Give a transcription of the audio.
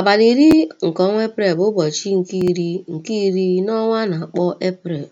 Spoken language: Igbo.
Abalị iri nke ọnwa Eprel bụ ụbọchị nke iri nke iri n'ọnwa a na-akpọ Eprel.